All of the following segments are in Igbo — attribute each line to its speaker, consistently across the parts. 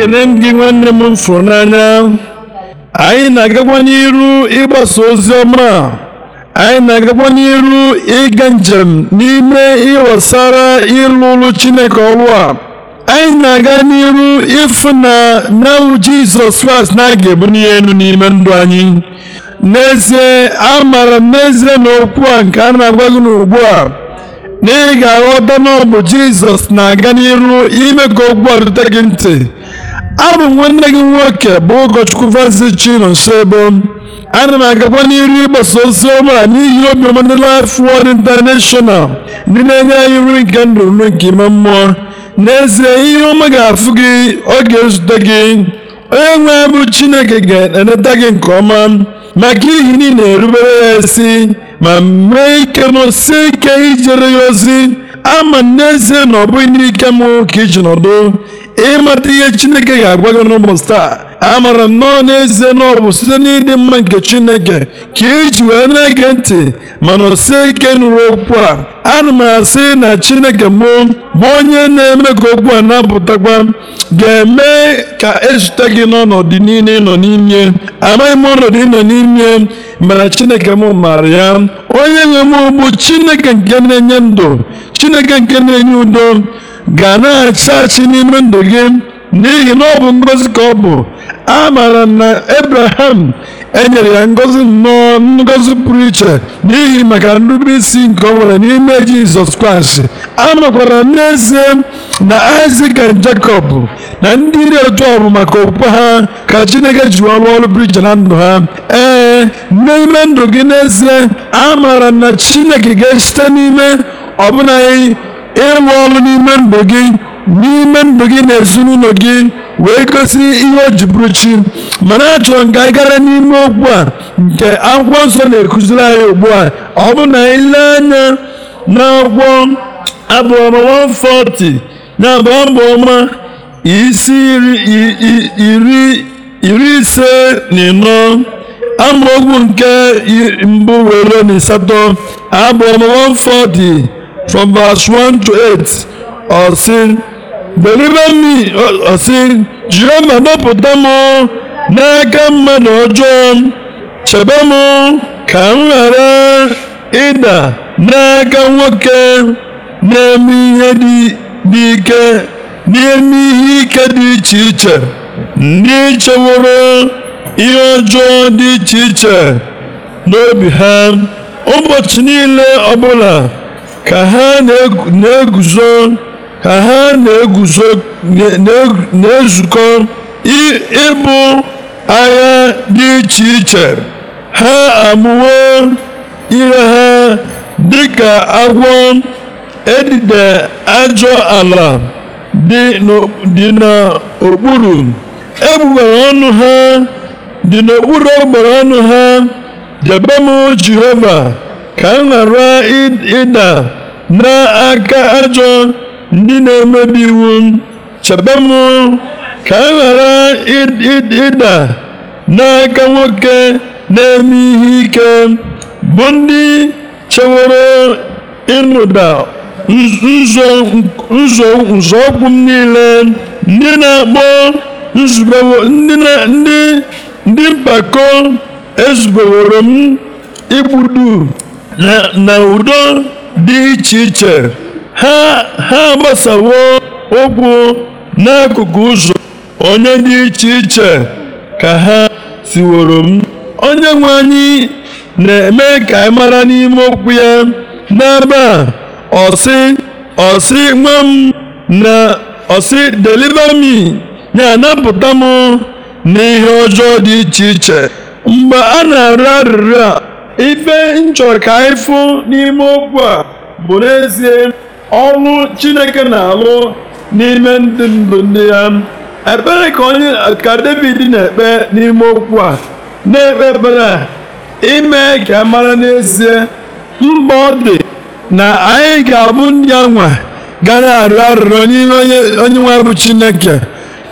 Speaker 1: ekene m gị nwanne m fụrụ n'anya anyị na-agakwa n'iru ịgbasa ozi ọma anyị na-agakwa n'iru ịga njem n'ime ịghọsara ịlụ ụlụ Chineke ọrụ a anyị na-aga n'iru ịfụ na nawụ Jizọs Kraịst na aga ebunye elu n'ime ndụ anyị n'ezie amara m n'ezie na okwu a nke a na-agwa gị n'ugbu a na ị ga-aghọta na ọ bụ Jizọs na-aga n'iru ime ka okwu a rute gị ntị abụ m nwanne gị nwoke bụ ụkọchukwu Francis Chinonsoebo ana m agakwa n'iru ịgbasa ozi ọma n'ihi obiọma ndị Life Word International ndị na-enye anyị nri nke ndụ nri nke ime mmụọ n'ezie ihe ọma ga-afụ gị ọ ga-ezute gị onye nwe bụ Chineke ga-eneta gị nke ọma maka ihi na ị na-erubere ya isi ma mee ike n'osi ike ijere ya ozi ama n'ezie na ọ bụghị n'ike m ka iji nọdụ ịmata ihe chineke ga-agwa gị n'ụbọchị taa amara nnọọ nọọ n'ezie na ọ bụ site n'ịdị mma nke chineke ka iji wee na-ege ntị mana o ike nụrụ okwu a ana m asị na chineke mụ bụ onye na-eme ka okwu a na-apụtakwa ga-eme ka ezute gị n'ọnọdụ niile ịnọ n'ime amaghị m ọnọdụ ịnọ n'ime mana chineke m maara ya onye nwe m chineke nke na-enye ndụ chineke nke na-enye udo ga na-achachi n'ime ndụ gị n'ihi na ọ bụ ngọzi ka ọ bụ a maara na Abraham enyere ya ngọzi nnọọ ngọzi pụrụ iche n'ihi maka nrube isi nke ọ nwere n'ime Jizọs Kraịst a makwara n'ezie na Isaac na Jacob na ndị iri ọjọọ bụ maka okwukwe ha ka Chineke ji ọrụ ọrụ pụrụ iche na ndụ ha ee n'ime ndụ gị n'ezie a maara na Chineke ga-esite n'ime ọbụna ịrụ ọrụ n'ime ndụ gị n'ime ndụ gị na ezinụlọ gị wee gosi ihe o ji bụrụ chi mana achọrọ nga ka anyị gara n'ime okwu a nke akwụkwọ nsọ na ekuziri anyị ugbu a ọ bụ na anyị lee anya n'akwụkwọ abụọma 140 na abụọma isi iri ise na ịnọ amaokwu nke mbụ were na asatọ abụọma 140 from verse 1 to 8 ọ sị deliver me ọ sị jiri ma napụta m n'aka mmadụ ọjọọ chebe m ka m ghara ịda n'aka nwoke na-eme ihe dị ike n'ime ihe ike dị iche iche ndị cheworo ihe ọjọọ dị iche iche n'obi ha ụbọchị niile ọbụla ka ha na-eguzo ka ha na-eguzo na-ezukọ ịbụ agha dị iche iche ha amụwo ire ha dị ka agwọ edide ajọ ala dị n'okpuru egbugbere ọnụ ha dị n'okpuru ọnụ ha debe m ka m ghara ịda n'aka ajọ ndị na-emebi iwu chebe m ka m ghara ịda n'aka nwoke na-eme ihe ike bụ ndị chewere ịnụda nzọụkwụ m niile ndị na-akpọ ndị mpako ezubeworo m igbudu na udo dị iche iche ha ha gbasawo okwu n'akụkụ ụzọ onye dị iche iche ka ha siworo m onye nwe anyị na-eme ka anyị mara n'ime okwu ya n'ebe a ọsị ọsị nwa m na ọsị deliver me na-anapụta m n'ihe ọjọọ dị iche iche mgbe a na-arịọ arịrịọ a ife nchọrọ ka anyị fụ n'ime okwu a bụ n'ezie ọrụ chineke na-alụ n'ime ndụ ndụ ndị ya ekpere ka onye ka david na-ekpe n'ime okwu a na-ekpe ekpere a ime ka mara n'ezie mgbe ọ dị na anyị ga-abụ ndị ya nwa ga na-arịọ arịrịọ n'ime onye nwe bụ chineke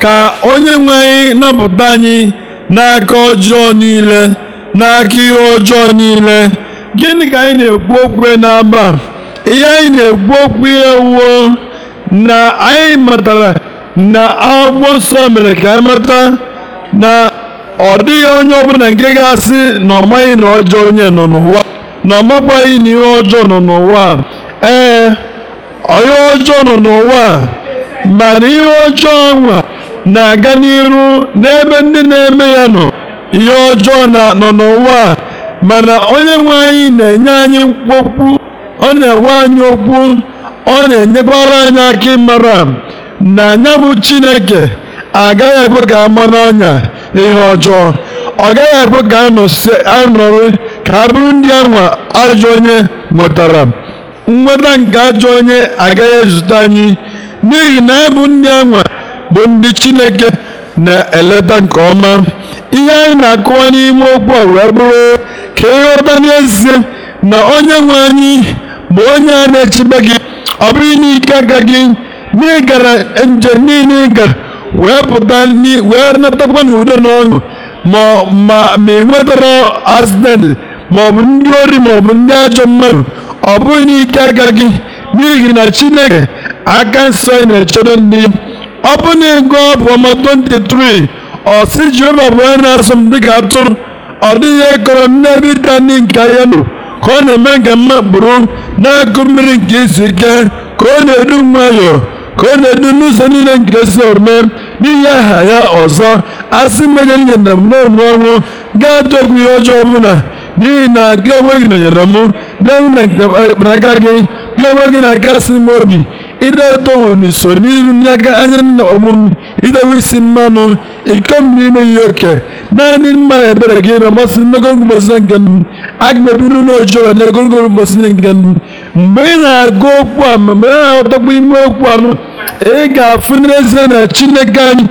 Speaker 1: ka onye nwe anyị napụta anyị n'aka ọjọọ niile n'aka ihe ọjọọ niile gịnị ka anyị na-ekwu okwu n'aba ihe anyị na-ekwu okwu ihe wuo na anyị matara na akwụkwọ nsọ mere ka anyị mata na ọ dịghị onye ọbụla nke ga-asị na ọ maghị na ọjọọ onye nọ n'ụwa na ọ makwaghị na ihe ọjọọ nọ n'ụwa ee onye ọjọọ nọ n'ụwa mana ihe ọjọọ nwa na-aga n'iru n'ebe ndị na-eme ya nọ ihe ọjọọ na nọ n'ụwa mana onye nwe anyị na-enye anyị okwu ọ na-enwe anyị okwu ọ na-enyekwara anyị aka ịmara na anya bụ Chineke agaghị ekwe ka ama n'anya ihe ọjọọ ọ gaghị ekwe ka anọrị ka a bụrụ ndị anwa ajọ onye nwetara nweta nke ajọ onye agaghị ezute anyị n'ihi na anyị bụ ndị anwa bụ ndị Chineke na-eleta nke ọma ihe anyị na-akụwa n'ime okwu a wee bụrụ ka ịghọta n'ezie na onye nwe anyị bụ onye a na-echebe gị ọ bụghị n'ike aka gị n'ịgara njem niile ị wee pụta wee natakwa n'udo na ọṅụ ma ị nwetara ọ bụ ndị ori maọbụ ndị ajọ mmadụ ọ bụghị n'ike aka gị n'ihi na chineke aka nsọ na-echebe ndị ọ ọbụna ego ọbụma 23 ọ sị jehova bụ onye na asụ m dịka atụrụ ọ dịghị ekọrọ m n'ebe ịta ndị nke ahịa nọ ka ọ na-eme nke mma kpụrụ na-akụ mmiri nke izu ike ka ọ na-edu nwayọọ ka ọ na-edu n'ụzọ niile nke si omume n'ihi aha ya ọzọ asị mmejọ nye na m n'ọnụ ọnwụ ga-atụ okwu ihe ọjọọ ọbụla n'ihi na gị onwe gị nọnyere m na-enwe na nke aka gị gị onwe gị na-akasị m obi ireetohunisorirunyaga ayana omum isi mmanụ iko mmiri meghị oke naanị mma ebere gị na-amasị n'ogologo mbosi nke agmebiru n'ojọọ na ogologo nke mgbe ị na-agụ okwu a mgbe ị na-aghọtakwa ime okwu a ị ga-afụ na chineke anyị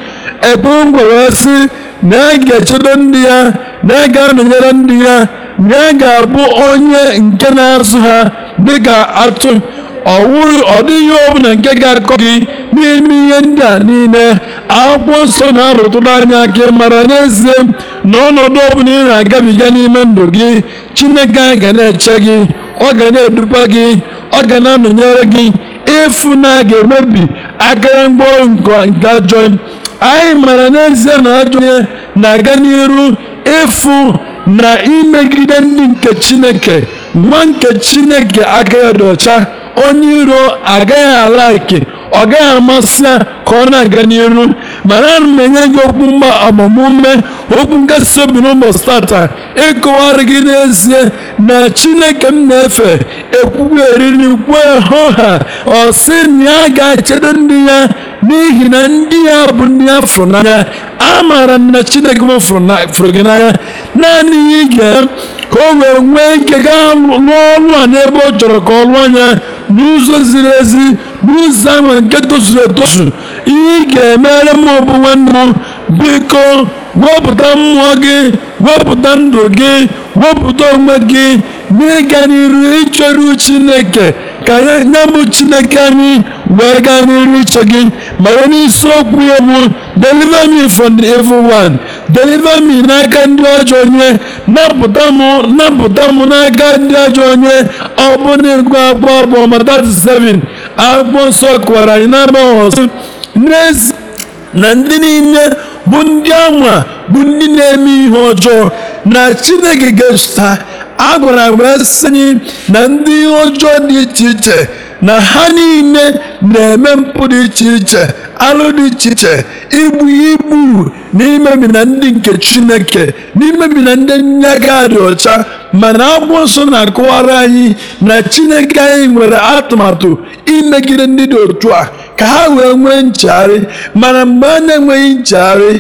Speaker 1: sị na ya ga ndị ya na ga ndị ya na ga-abụ onye nke na-azụ ha dịka atụ ọ dịghị ọbụla nke ga-akọ gị n'ime ihe ndị a niile akwụkwọ nsọ na-arụtụrụ anya ka mara n'ezie na ọnọdụ ọbụla ị na-agabiga n'ime ndụ gị chineke a ga na-eche gị ọ ga na-edukwa gị ọ ga na-anọnyere gị ịfụ na a ga-emebi akara mgbọ nke ajọ anyị mara n'ezie na ajọ na-aga n'iru ịfụ na imegide ndị nke chineke nwa nke chineke aka ya dị ọcha onye iro agaghị ala ike ọ gaghị amasị ya ka ọ na-aga n'iru mana ana m enye gị okwu mgba agbamume okwu nkasi obi n'ụbọchị tata ịkọwara gị n'ezie na chineke m na-efe ekwugo eriri kwe hụ ha ọ sị na ya ga-echedo ndị ya n'ihi na ndị ya bụ ndị ya fụrụ n'anya amaara m na chineke m fụrụ gị n'anya naanị ya ige ka o wee nwee ike gaa lụọ ọrụ a n'ebe ọ chọrọ ka ọ lụọ anya n'ụzọ ziri ezi n'ụzọ ahụ nke tozuru etozu ihe ị ga-emere m bụ nwanne m biko wepụta mmụọ gị wepụta ndụ gị wepụta onwe gị n'ịga n'iru ịchọrụ Chineke ka ya bụ chineke anyị wee gaa n'iru iche gị ma onye isi okwu ya bụ deliver me from the evil one deliver me n'aka ndị ajọ onye napụta m napụta m n'aka ndị ajọ onye ọ bụ na ego akpọ abụọ ma 37 akwụkwọ nsọ kụwara anyị n'agbọghọ sị n'ezi na ndị niile bụ ndị ama bụ ndị na-eme ihe ọjọọ na chineke ga echeta a gwara m na ndị ọjọọ dị iche iche na ha niile na-eme mpụ dị iche iche alụ dị iche iche igbu igbu n'imebi na ndị nke chineke n'imebi na ndị nnyaga dị ọcha mana akwụkwọ nsọ na-akọwara anyị na chineke anyị nwere atụmatụ imegide ndị dị otu a ka ha wee nwee nchegharị mana mgbe a na-enweghị nchegharị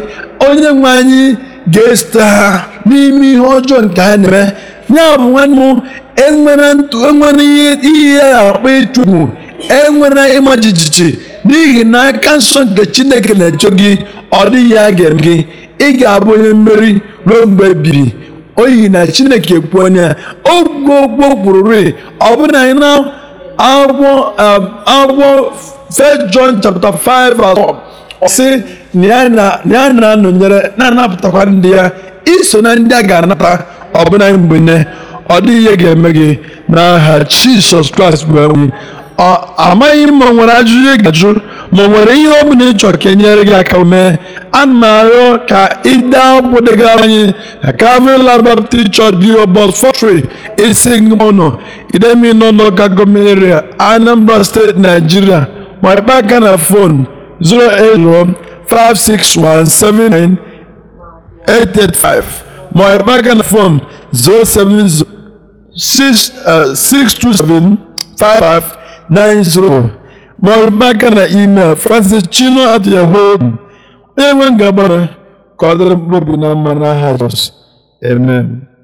Speaker 1: onye nwe anyị ga-esite ha n'ime ihe ọjọọ nke ha na-eme ya bụ nwanne enwere ntụ enwere ihe ya akpa ịchụgbu enwere ịma jijiji n'ihi na aka nsọ nke chineke na-eche gị ọ dịghị ya ga-eme gị ị ga-abụ onye mmeri ruo mgbe ebiri oyi na chineke kwu onye ya ogwugwo kwururi ọ bụrụ na anyị na um, akwụkwọ First John chapter 5 sị na ya na-anọnyere na-anapụtakwa ndị ya iso na ndị a ga-anata ọbụna mgbe ne ọ dịghị ihe ga-eme gị n'aha Jizọs Kraịst bụ enwe amaghị m ma ọ nwere ajụjụ ị ajụ ma ọ nwere ihe ọ bụla ị chọrọ ka enyere gị aka mee ana m arịọ ka ịde akwụkwọ degara anyị na Calvary Land Baptist Church Bio Box 43 Isigbunọ Idemili n'ụlọụka gọọmenti area Anambra steeti Nigeria ma ịkpa aka na fon 08056179885 my bank phone 07062755904 maọbụ maka na email francis chino at yahoo onye nwe ngabara ka ọ na amen